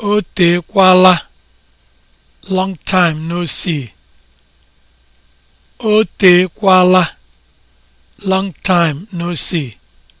O teekwala long long time no see.